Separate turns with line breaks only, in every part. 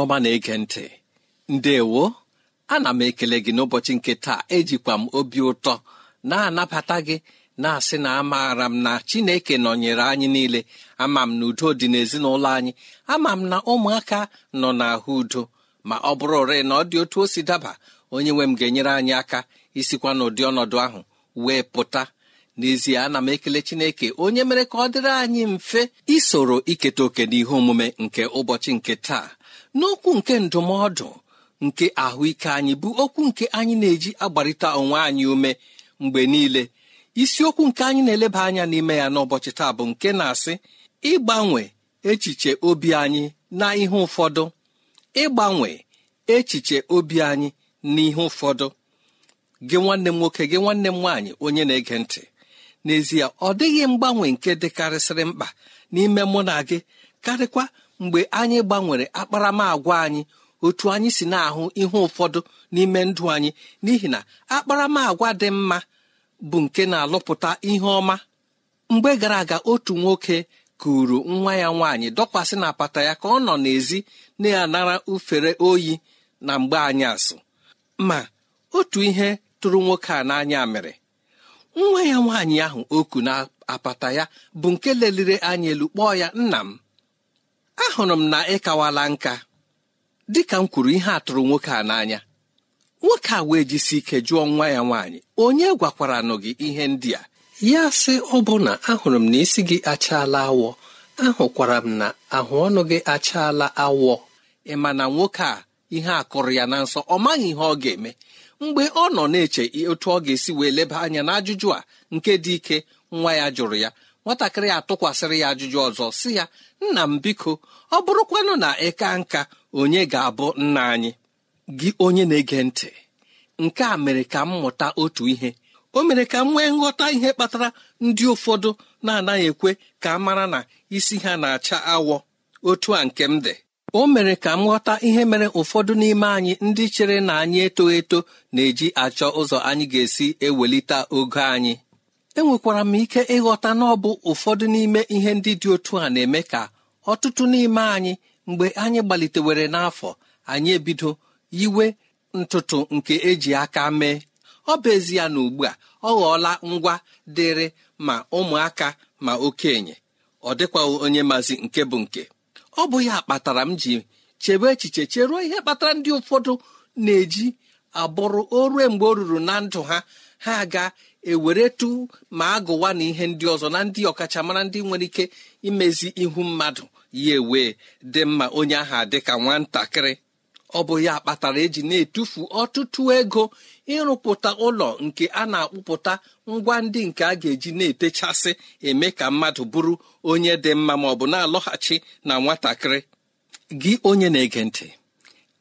ọma na-ege ntị ndewo ana m ekele gị n'ụbọchị nke taa ejikwa m obi ụtọ na-anabata gị na-asị na amaara m na chineke nọnyere anyị niile ama m na udo dị n'ezinụlọ anyị ama m na ụmụaka nọ n'ahụ udo ma ọ bụrụ ore na ọ dị otu o si daba onye nwe m ga-enyere anyị aka isikwa n'ụdị ọnọdụ ahụ wee pụta n'ezie ana m ekele chineke onye mere ka ọ dịrị anyị mfe isoro iketa oke n'ihe omume nke ụbọchị nke taa n'okwu nke ndụmọdụ nke ahụike anyị bụ okwu nke anyị na-eji agbarịta onwe anyị ume mgbe niile isiokwu nke anyị na-eleba anya n'ime ya n'ụbọchị taa bụ nke na-asị ịgbanwe echiche obi anyị na ihe ụfọdụ ịgbanwe echiche obi anyị na ihe ụfọdụ gị nwanne m nwoke gị nwanne m nwaanyị onye na-ege ntị n'ezie ọ dịghị mgbanwe nke dịkarịsịrị mkpa n'ime mụ na gị karịkwa mgbe anyị gbanwere akparamagwa anyị otu anyị si na-ahụ ihe ụfọdụ n'ime ndụ anyị n'ihi na akparamagwa dị mma bụ nke na-alụpụta ihe ọma mgbe gara aga otu nwoke kuru nwa ya nwaanyị dọkwasị na apata ya ka ọ nọ n'èzí na-anara ufere oyi na mgbe anyị asụ ma otu ihe tụrụ nwoke a n'anya mere nwa ya nwaanyị ahụ oku na apata ya bụ nke leliri anya elu kpọọ ya nna m ahụrụ m na ị kawala nka dịka m kwuru ihe atụrụ nwoke a n'anya nwoke a wee jisi ike jụọ nwa ya nwaanyị onye gwakwaranụ gị ihe ndị a ya sị ọbụna ahụrụ m na isi gị achaala awọ ahụkwara m na ahụ ọnụ gị achaala awọ ị ma na nwoke a ihe a kụrụ ya na nsọ ọ maghị ihe ọ ga-eme mgbe ọ nọ na-eche otu ọ ga-esi wee leba anya n'ajụjụ a nke dị ike nwa ya jụrụ ya nwatakịrị atụkwasịrị ya ajụjụ ọzọ si ya nna m biko ọ bụrụkwanụ na ka nka onye ga-abụ nna anyị gị onye na-ege ntị nke a mere ka m mụta otu ihe o mere ka m nwee nghọta ihe kpatara ndị ụfọdụ na-anaghị ekwe ka a mara na isi ha na-acha awọ otu a nke m dị o mere ka m ghọta ihe mere ụfọdụ n'ime anyị ndị chere na anyị eto eto na-eji achọ ụzọ anyị ga-esi ewelite ogo anyị enwekwara m ike ịghọta na ọ bụ ụfọdụ n'ime ihe ndị dị otu a na-eme ka ọtụtụ n'ime anyị mgbe anyị gbalitewere n'afọ anyị ebido yiwe ntụtụ nke eji aka mee ọ bụ ezie na ugbu a ọ ghọọla ngwa dịrị ma ụmụaka ma okenye ọ dịkwaghị onye mazi nke bụ nke ọ bụ ya kpatara m ji chebe echiche cheruo ihe kpatara ndị ụfọdụ na-eji abụrụ o mgbe o ruru na ndụ ha ha aga eweretu ma agụwa na ihe ndị ọzọ na ndị ọkachamara ndị nwere ike imezi ihu mmadụ ya ewee dị mma onye aha dị ka nwatakịrị ọ bụ ya kpatara eji na-etufu ọtụtụ ego ịrụpụta ụlọ nke a na-akpụpụta ngwa ndị nke a ga-eji na-etechasị eme ka mmadụ bụrụ onye dị mma ma ọ bụ na-alọghachi na nwatakịrị gị onye na-ege ntị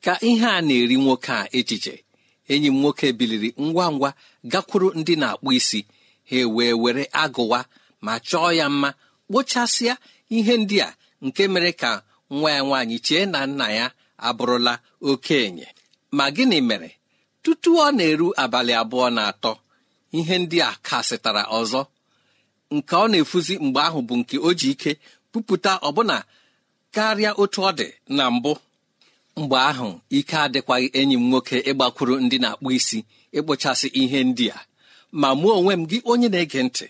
ka ihe a na-eri nwoke a echiche enyi m nwoke biliri ngwa ngwa gakwuru ndị na-akpụ isi ha wee were agụwa ma chọọ ya mma kpochasịa ihe ndị a nke mere ka nwa ya nwaanyị chee na nna ya abụrụla okenye ma gịnị mere tutu ọ na-eru abalị abụọ na atọ ihe ndị a kasịtara ọzọ nke ọ na-efuzi mgbe ahụ bụ nke o ji ike pupụta ọbụna karịa otu ọ dị na mbụ mgbe ahụ ike adịkwaghị enyi m nwoke ịgbakwuru ndị na-akpụ isi ịkpụchasị ihe ndị a ma mụọ onwe m gị onye na-ege ntị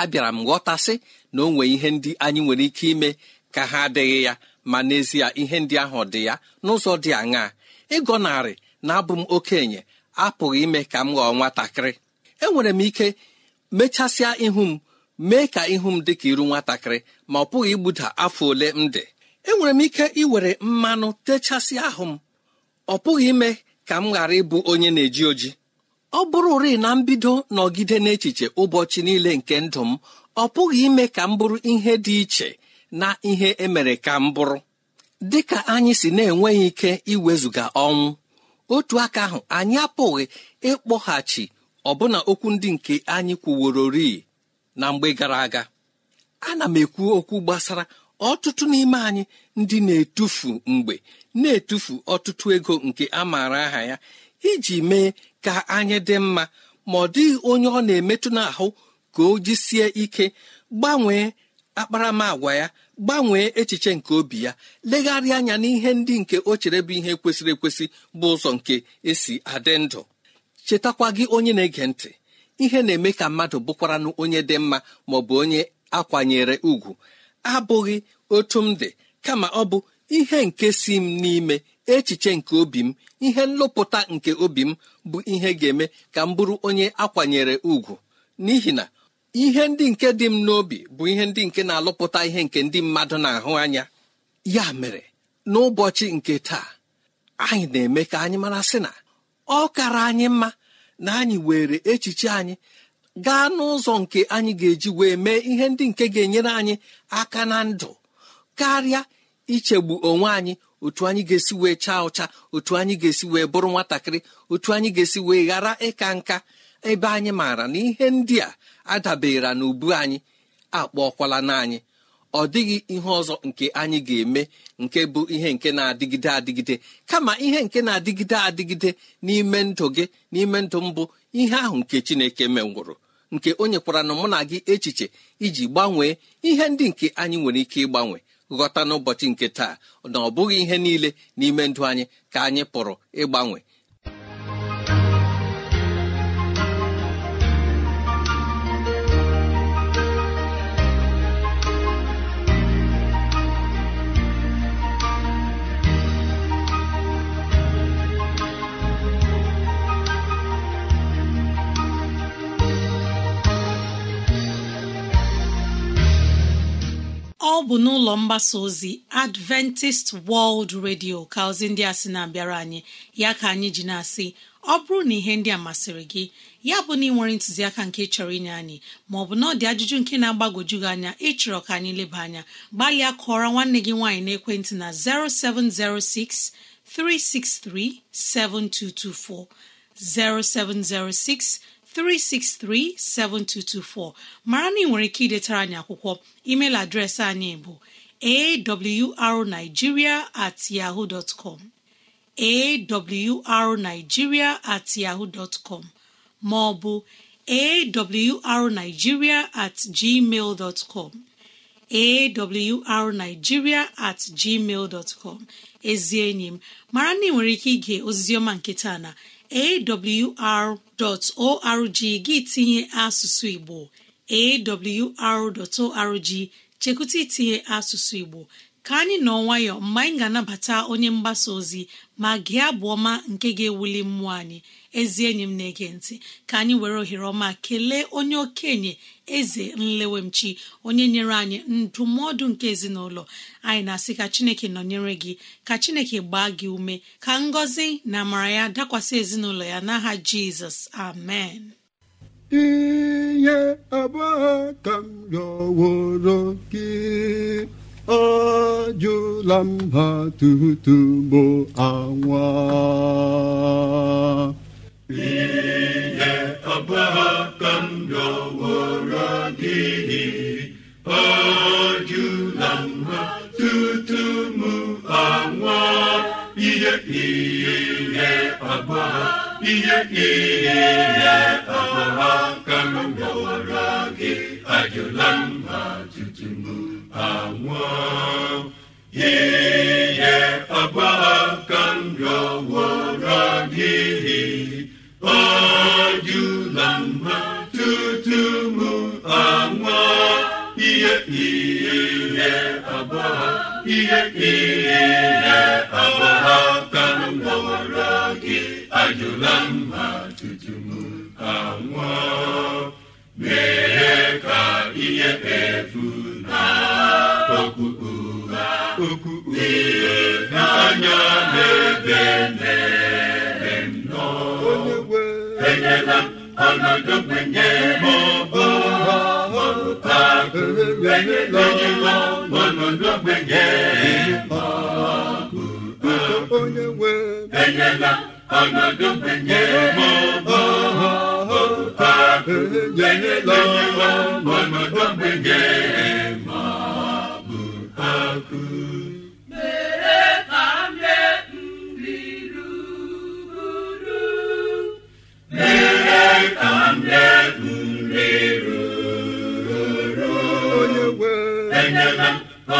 abịara m ghọtasị na o nwee ihe ndị anyị nwere ike ime ka ha adịghị ya ma n'ezie ihe ndị ahụ dị ya n'ụzọ dị aṅaa ịgọnarị na-abụ m okenye apụghị ime ka m ghọọ nwatakịrị enwere m ike mechasịa ihu m mee ka ihu m dị ka iru nwatakịrị ma ọ pụghị igbuda afọ ole m dị enwere m ike iwere mmanụ techasị ahụ m ọ pụghị ime ka m ghara ịbụ onye na-eji oji ọ bụrụ uri na mbido nọgide n'echiche ụbọchị niile nke ndụ m ọ pụghị ime ka m bụrụ ihe dị iche na ihe emere ka m bụrụ dị ka anyị si na-enweghị ike iwezụga ọnwụ otu aka ahụ anyị apụghị ịkpọghachi ọbụna okwu ndị nke anyị kwuworori na mgbe gara aga ana m ekwu okwu gbasara ọtụtụ n'ime anyị ndị na-etufu mgbe na-etufu ọtụtụ ego nke a maara aha ya iji mee ka anyị dị mma ma ọ dịghị onye ọ na-emetụ n'ahụ ka o jisie ike gbanwee akparamagwa ya gbanwee echiche nke obi ya legharịa anya n'ihe ndị nke o chere bụ ihe kwesịrị ekwesị bụ ụzọ nke esi adị ndụ chetakwa gị onye na-ege ntị ihe na-eme ka mmadụ bụkwaranụ onye dị mma ma ọ bụ onye akwanyere ugwu abụghị otu m dị kama ọ bụ ihe nke si m n'ime echiche nke obi m ihe nlụpụta nke obi m bụ ihe ga-eme ka m bụrụ onye akwanyere ugwu n'ihi na ihe ndị nke dị m n'obi bụ ihe ndị nke na-alụpụta ihe nke ndị mmadụ na-ahụ anya ya mere n'ụbọchị nke taa anyị na-eme ka anyị mara sị na ọ kara anyị mma na anyị were echiche anyị gaa n'ụzọ nke anyị ga-eji wee mee ihe ndị nke ga-enyere anyị aka na ndụ karịa ichegbu onwe anyị otu anyị ga-esi wee chaa ụcha otu anyị ga-esi wee bụrụ nwatakịrị otu anyị ga-esi wee ghara ịka nka ebe anyị maara na ihe ndị a adabere na ubu anyị akpọkwala na anyị ọ dịghị ihe ọzọ nke anyị ga-eme nke bụ ihe nke na-adịgide adịgide kama ihe nke na-adịgide adịgide n'ime ndụ gị n'ime ndụ mbụ ihe ahụ nke chineke menwụrụ nke o nyekwara na mụ na gị echiche iji gbanwee ihe ndị nke anyị nwere ike ịgbanwe ghọta n'ụbọchị nke taa na ọ bụghị ihe niile n'ime ndụ anyị ka anyị pụrụ ịgbanwe
ọ bụ n'ụlọ mgbasa ozi adventist world radio ka ozi ndị a sị na-abịara anyị ya ka anyị ji na-asị ọ bụrụ na ihe ndị a masịrị gị ya bụ na ị nwere ntụziaka nke chọrọ inye anyị maọbụ na ọ dị ajụjụ nke na-agbagwoju gị anya ịchọrọ ka anyị leba anya gbalịa kụọrọ nwanne gị nwaanyị n'ekwentị na 0706 363 7224 0706 363-7224 mara na ị nwere ike idetara anyị akwụkwọ email adreesị anyị bụ arigiria at at com ma ọ bụ at gmail com at gmail com ezi enyi m mara na ị nwere ike ige oziziọma nke taa na awr.org gị tinye asụsụ Igbo awr.org chekwụta itinye asụsụ Igbo ka anyị nọ nwayọọ mgbe anyị ga-anabata onye mgbasa ozi ma gị abụ ọma nke ga-ewuli mmụọ anyị ezi enyi m na-ege ntị ka anyị were ohere ọma kelee onye okenye eze nlewemchi onye nyere anyị ndụmọdụ nke ezinụlọ anyị na-asị ka chineke nọnyere gị ka chineke gbaa gị ume ka ngọzi na amara ya dakwasị ezinụlọ ya n'aha jizọs amen
gị ajụla m ha tutubo anwa ihe abụọ ka m rịọworo gị ajụla m ha tutu m anwa ihe ihe abụọ ihe ihe abụọ kam m gị ajụla m tutu m anwụọ ihe ka m rọwọrọ gị. ọ jụla mma tutu m anwụọ ihe ihe agbagha ihe ihe agbagha m rọwọrọ gị ajụla mma tutu m anwụọ mee ka ihe efu okpu ụgha okpu ihe n'anya na-ebe na-ebe nọ enyela ọnọdụ kwenye m ọbọ enyela ọnọdụ enyela ọnọdụ kwenye m ọbọ enyela ọnọdụ kwenye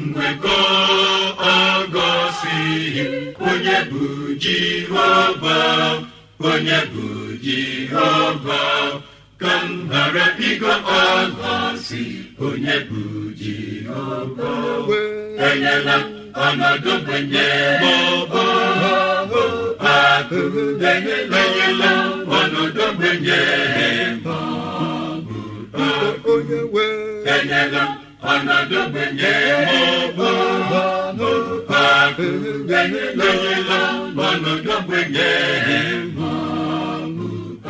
mgbeko ọgọsighị onye bụ jehova onye bụ jehova ka m ghara ịgọ ọgọsi onye bụ jehova enyela ọnọdụ gbenye maọbụ akụ enyela ọnọdụ gbenye maọbụ akụ enyela ọnọdụ mụbụbụ akụgbenyelọ ọnọdụgbenye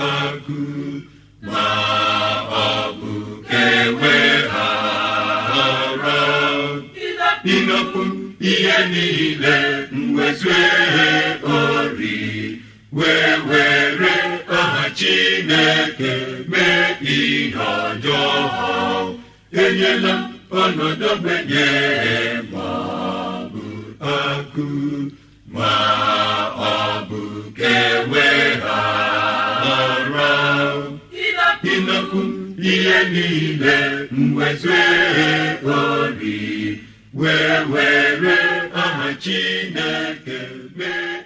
akụ ma ọ bụ kewe ha ọrọ inokwu ihe niile mwezue ori wee were aha chineke mee ihe ọjọọ enyela unu dobenyere ma ọ bụ akụ ma ọ bụ kewe ha ọrụ ihe niile mwezue obi wee were aha Chineke
mee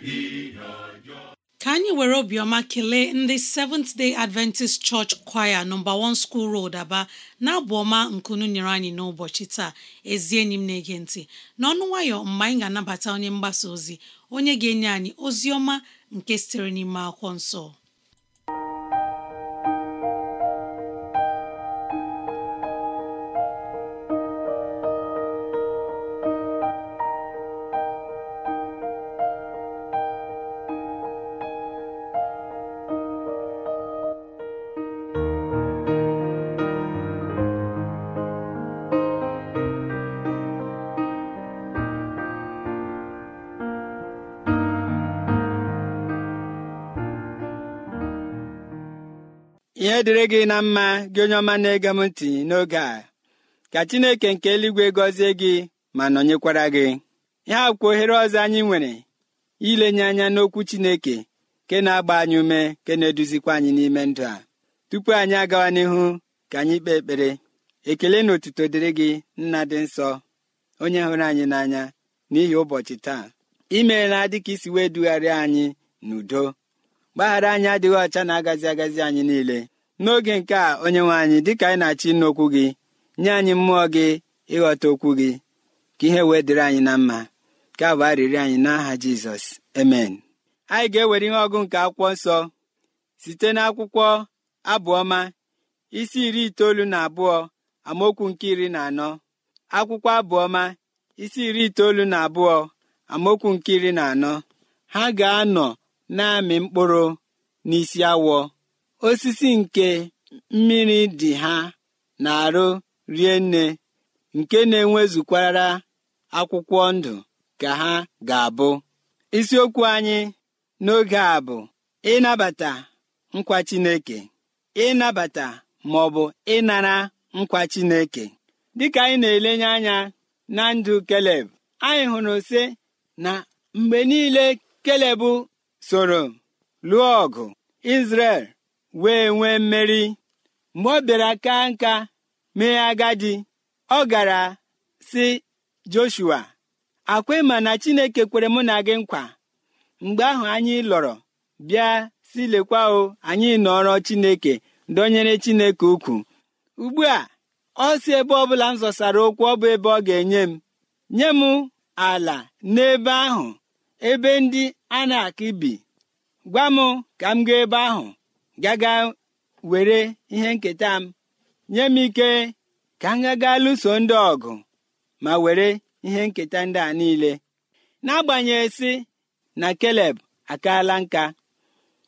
anyị were obiọma kelee ndị Seventh Day Adventist Church Choir nọmba 1 School Road Aba na-abụ ọma nkunu nyere anyị n'ụbọchị taa ezi enyi m na-ege ntị n'ọnụ nwayọ mgbe anyị ga-anabata onye mgbasa ozi onye ga-enye anyị ozi ọma nke sitere n'ime akwụkwọ nsọ
ihe dịrị gị na mma gị onye ọma na-ege m ntị n'oge a ka chineke nke eluigwe gọzie gị ma nọnyekwara gị ihe akwụkwọ ohere ọzọ anyị nwere ilenye anya n'okwu chineke ke na-agba anyị ume ke na-eduzikwa anyị n'ime ndụ a tupu anyị agawa n'ihu ka anyị kpee ekpere ekele na otuto dịrị gị nna dị nsọ onye hụrụ anyị n'anya n'ihi ụbọchị taa imeela dịka isi wee dugharịa anyị n'udo mgbaghara anyị adịghị ọcha na-agazi agazi anyị niile n'oge nke a onye nwe anyị dịka anyị na-achọ ịnụ gị nye anyị mmụọ gị ịghọta okwu gị ka ihe wee dịrị anyị na mma ka bụ arịrị anyị n'aha jizọs emen anyị ga-ewere ihe ọgụ nke akwụkwọ nsọ site n'akwụkwọ abụọma isi iri itoolu na abụọ amaokwu nke iri na anọ akwụkwọ abụọma isi iri itoolu na abụọ amaokwu nke iri na anọ ha ga-anọ na-amị mkpụrụ n'isi awọ osisi nke mmiri dị ha na-arụ rie nne nke na-enwezukwara akwụkwọ ndụ ka ha ga-abụ isiokwu anyị n'oge a bụ ịnabata nkwa Chineke ịnabata ma ọ bụ ịnara nkwa Chineke dịka anyị na-elenye anya na ndụ Keleb anyị hụrụ sị na mgbe niile Keleb soro lụọ ọgụ Izrel wee nwee mmeri mgbe ọ bịara ka nka mee agadi ọ gara si joshua akwa ma na chineke kwere mụ na gị nkwa mgbe ahụ anyị lọrọ bịa si lekwa o anyị nọrọ chineke dọnyere chineke ukwu ugbu a ọ si ebe ọbụla m zọsara okwu ọ bụ ebe ọ ga-enye m nye m ala n'ebe ahụ ebe ndị a na akọ bi gwa m ka m gaa ebe ahụ gaga were ihe nketa m nye m ike ka m gaga lụso ndị ọgụ ma were ihe nketa ndị a niile n'agbanyeghị si na keleb akaala nka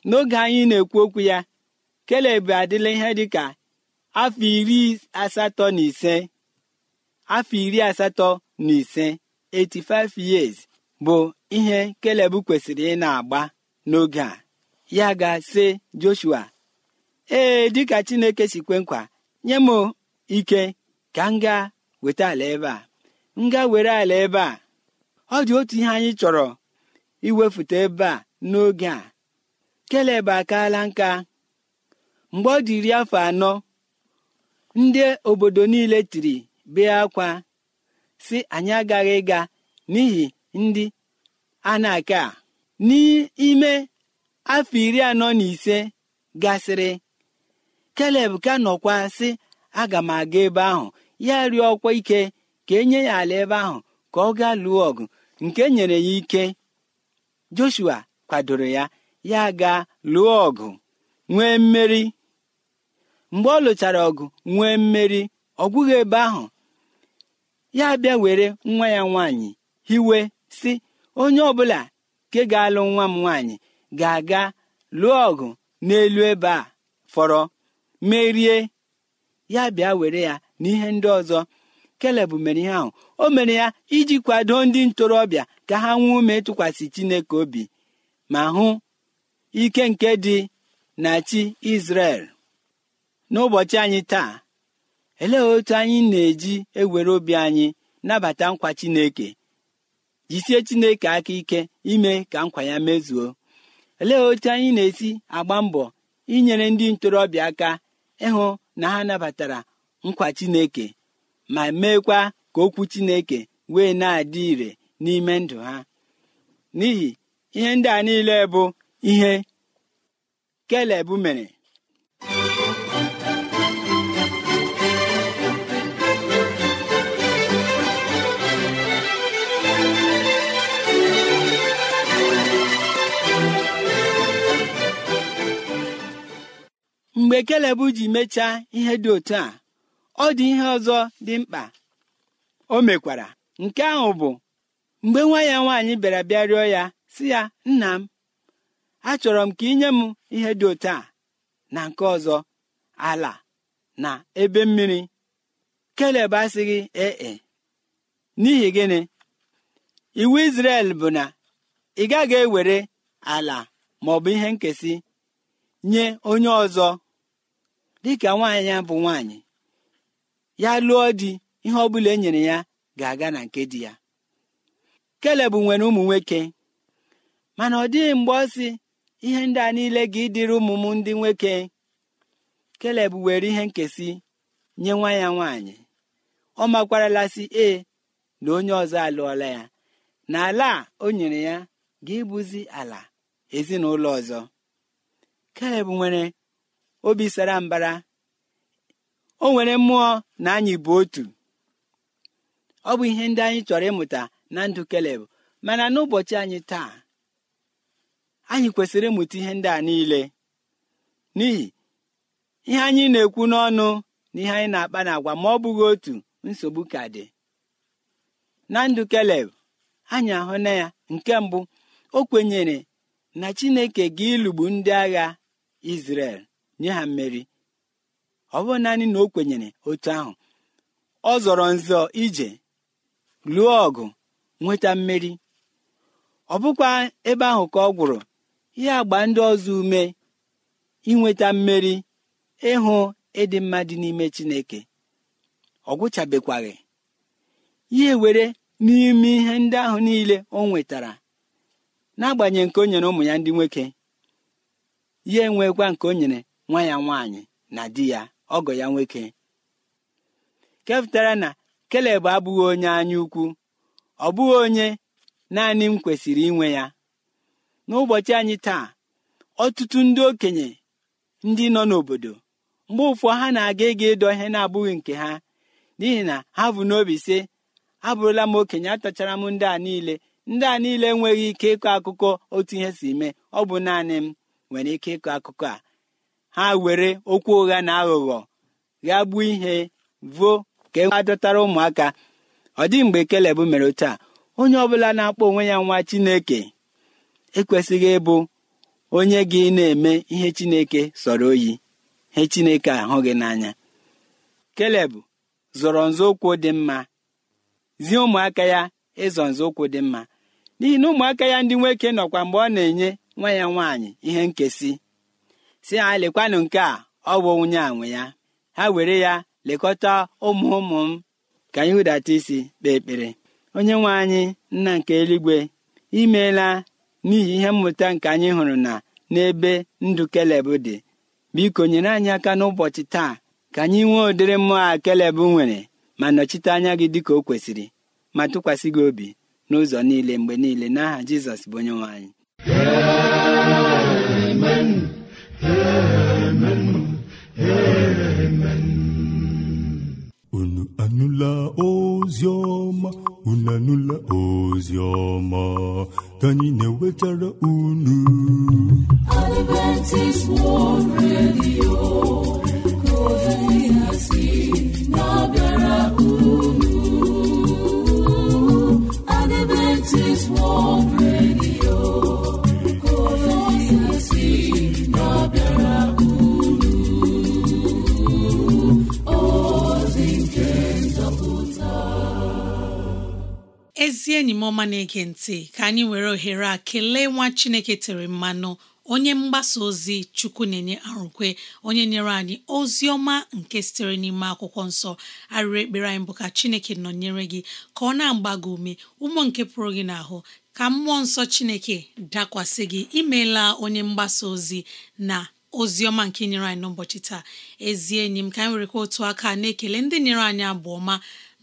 n'oge anyị na-ekwu okwu ya keleb adịla ihe dịka afọ iri asatọ na ise afọ iri asatọ na ise 85 years bụ ihe keleb kwesịrị ị na-agba n'oge a ya ga-asị joshua ee dịka chineke si kwe nkwa nye m ike ka m weta ala ebe a m were ala ebe a ọ dị otu ihe anyị chọrọ iwefute ebe a n'oge a keleb akaala nka mgbe ọ dị iri afọ anọ ndị obodo niile tiri bee akwa si anyị agaghị ịga n'ihi ndị a na-aka n'ime afọ iri anọ na ise gasịrị keleb ka nọkwa sị aga m aga ebe ahụ ya ọkwa ike ka enye ya ala ebe ahụ ka ọ gaa lụọ ọgụ nke nyere ya ike joshua kwadoro ya ya gaa lụọ ọgụ nwee mmeri mgbe ọ lụchara ọgụ nwee mmeri ọ gwụghị ebe ahụ ya bịa were nwa ya nwaanyị hiwe si onye ọbụla nke ga-alụ nwa m nwaanyị ga-aga lụọ ọgụ n'elu ebe a fọrọ merie ya bịa were ya n'ihe ndị ọzọ keleb mere ihe ahụ o mere ya iji kwado ndị ntorobịa ka ha nwee ume ịtụkwasị chineke obi ma hụ ike nke dị na chi izrel n'ụbọchị anyị taa elee otu anyị na-eji ewere obi anyị nabata nkwa chineke jisie chineke aka ike ime ka nkwa ya mezuo olee otu anyị na-esi agba mbọ inyere ndị ntorobịa aka ịhụ na ha nabatara nkwa chineke ma meekwa ka okwu chineke wee na-adị ire n'ime ndụ ha n'ihi ihe ndị a niile bụ ihe kelebụ mere mgbe keleb ji mechaa ihe dị otu a ọ dị ihe ọzọ dị mkpa o mekwara nke ahụ bụ mgbe nwa ya nwaanyị bịara bịa rịọ ya si ya nna m achọrọ m ka inye m ihe dị otu a na nke ọzọ ala na ebe mmiri keleb asịghị ee e, n'ihi gịnị iwu Izrel bụ na ị gaghị ewere ala maọbụ ihe nkesi nye onye ọzọ dịka nwaanyị ya bụ nwaanyị ya lụọ di ihe ọ bụla e nyere ya ga-aga na nke di ya Kelebụ nwere ụmụ nwoke mana ọ dịghị mgbe ọ sị ihe ndị a niile ga ịdịrị ụmụ m ndị nwoke keleb were ihe nkesị nye nwa ya nwaanyị ọ makwaralasi e na onye ọzọ alụọla ya na ala o nyere ya ga ịbụzi ala ezinụlọ ọzọ keleb nwere obi sara mbara o nwere mmụọ na anyị bụ otu ọ bụ ihe ndị anyị chọrọ ịmụta na ndụ keleb mana n'ụbọchị anyị taa anyị kwesịrị ịmụta ihe ndị a niile n'ihi ihe anyị na-ekwu n'ọnụ na ihe anyị na-akpa n'agwa ma ọ bụghị otu nsogbu ka dị na ndụ keleb anyị ahụ na ya nke mbụ o kwenyere na chineke ga ịlụgbu ndị agha Izrel nye ha mmeri ọ bụrụ naanị na o kwenyere otu ahụ ọ zọrọ nzọ ije lụọ ọgụ nweta mmeri ọ bụkwa ebe ahụ ka ọ gwụrụ ihe agba ndị ọzọ ume inweta mmeri ịhụ ịdị mma dị n'ime Chineke ọ gwụchabekwaghị ya were n'ime ihe ndị ahụ niile o nwetara n'agbanyeghị nke o nyere ụmụ ya ndị nwoke ya enwekwa nke o nyere nwa ya nwaanyị na di ya ọgọ ya nwoke kepụtara na keleb abụghị onye anya ukwu ọ bụghị onye naanị m kwesịrị inwe ya n'ụbọchị anyị taa ọtụtụ ndị okenye ndị nọ n'obodo mgbe ụfọ ha na-aga ịga ịdọ ihe na-abụghị nke ha n'ihi na ha bụ n'obi sị abụrụla m okenye atachara m ndị a niile ndị a niile enweghị ike ịkọ akụkọ otu ihe si mee ọ bụ naanị m nwere ike ịkọ akụkọ a ha were okwu ụgha na aghụghọ gbuo ihe vuo ka e adọtara ụmụaka ọ dị mgbe keleb mere otu a onye ọbụla na-akpọ onwe ya nwa chineke ekwesịghị ịbụ onye gị na-eme ihe chineke sọrọ oyi ihe chineke ahụ gị n'anya keleb zọrọ nzọụkwụ dị mma zie ụmụaka ya ịzọ nzọụkwụ dị mma n'ihi na ụmụaka ya ndị nwoke nọkwa mgbe ọ na-enye nwa ya nwaanyị ihe nkesi si ya lekwanụ nke a ọ bụ nwunye nwe ya ha were ya lekọta ụmụ ụmụ m ka anyị hụdata isi kpee ekpere onye nwe anyị nna nke eluigwe imeela n'ihi ihe mmụta nke anyị hụrụ na n'ebe ndụ kelebụ dị biko nyere anyị aka n'ụbọchị taa ka anyị nwee ụdịrị mmụọ a kelebụ nwere ma nọchite anya gị dịka o kwesịrị ma tụkwasị gị obi n'ụzọ niile mgbe niile n'aha Jizọs bụ onye nwe anyị
ozi ọma ka anyị na-ewetara unu
na-ege ntị ka anyị were ohere a kelee nwa Chineke tere mmanụ onye mgbasa ozi chukwu na-enye arụkwe onye nyere anyị ozi ọma nke sitere n'ime akwụkwọ nsọ arịrị ekpere anyị bụ ka chineke nọnyere gị ka ọ na-agba gị ume ụmụ nke pụrụ gị n'ahụ ka mmụọ nsọ chineke dakwasị gị imeela onye mgbasa ozi na ozi ọma nke nyere anyị n'ụbọchị taa ezie enyi m ka anyị werekwa otu aka na-ekele ndị nyere anyị abụ ọma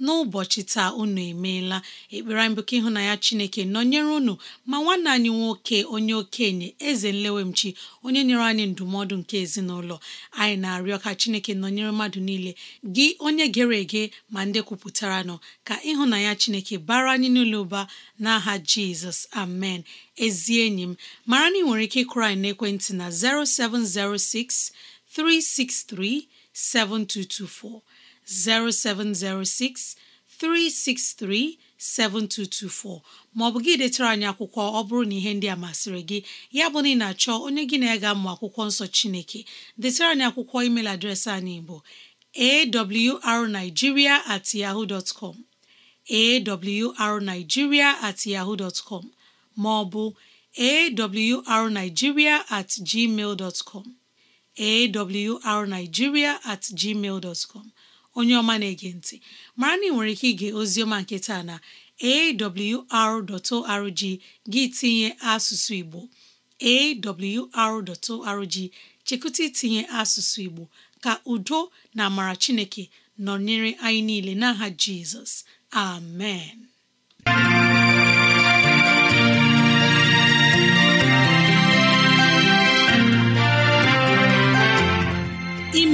n'ụbọchị taa unu emeela ekpere anyị bụ ka ịhụnanya Chineke nọnyere unu ma nwanne anyị nwoke onye okenye eze nlewemchi onye nyere anyị ndụmọdụ nke ezinụlọ anyị na-arịọ ka Chineke nọnyere mmadụ niile gị onye gere ege ma ndị kwupụtara nọ ka ịhụnanya Chineke bara anyị n'ụlọ ụba n'aha Jizọs amen ezi enyi m mara na ị nwere ike ịkụrụ anyị n'ekwentị na 0706 363 7224 0706 363 7224 maọbụ gị detara anyị akwụkwọ ọ bụrụ na ihe ndị a masịrị gị ya bụ na ị na-achọ onye gị na ya ga akwụkwọ nsọ Chineke detara anyị akwụkwọ email adreesị anyị bụ arigiria at yahoo dot com awrnigeria at yahoo com maọbụ awrnigeria at gmail com awrnigeria at gmail com onye ọma na-ege ntị mara na ị nwere ike ige oziọma nke taa na awr.org gị tinye asụsụ Igbo awr.org chekụta itinye asụsụ Igbo ka udo na amara Chineke nọnyere anyị niile n'aha Jizọs amen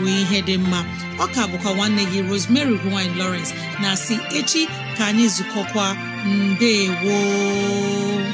bụ ihe dị mma ọ ọka bụkwa nwanne gị Rosemary gine lowrence na si echi ka anyị zukọkwa mbe woo